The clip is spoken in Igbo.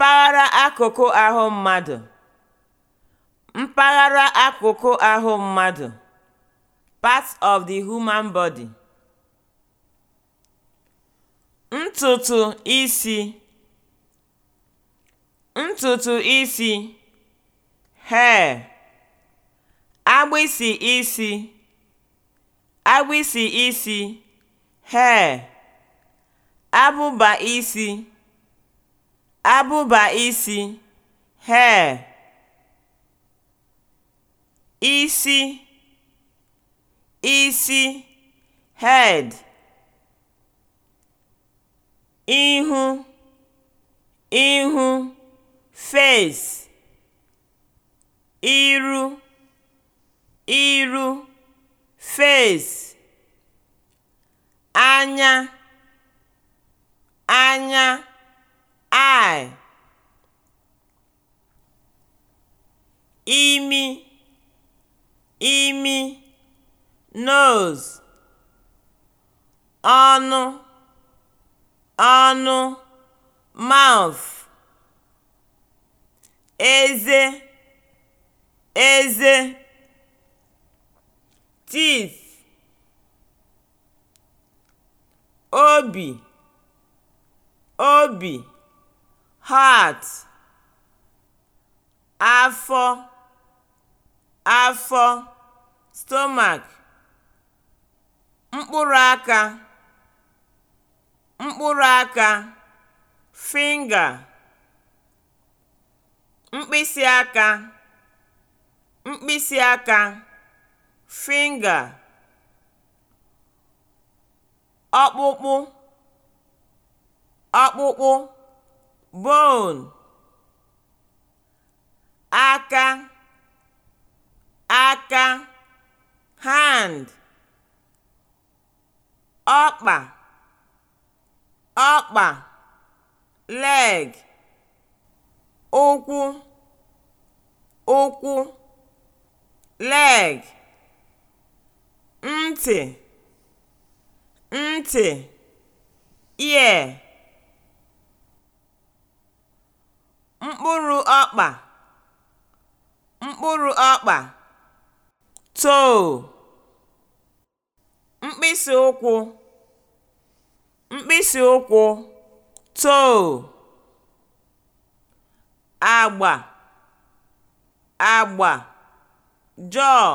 mpaghara akụkụ ahụ mmadụ mpaghara akụkụ ahụ mmadụ of the human body) ntutu isi ntutu isi (hair) agbịsị isi agbịsị isi (hair) abụba isi abụba isi (hair), isi (isi (head), ihu (ihu (face), iru (iru (face), anya (anya imi imi nose ọnụ ọnụ mouth eze eze teeth obi obi heart afọ afọ (stomach), mkpụrụ aka mkpụrụ aka (finger), mkpịsị aka mkpịsị aka (finger), ọkpụkpụ ọkpụkpụ (bone), aka aka hand ọkpa ọkpa leg ụkwụ ụkwụ leg ntị ntị ear mkpụrụ ọkpa mkpụrụ ọkpa toe mkpịsị ụkwụ mkpịsị ụkwụ toe agba agba jaw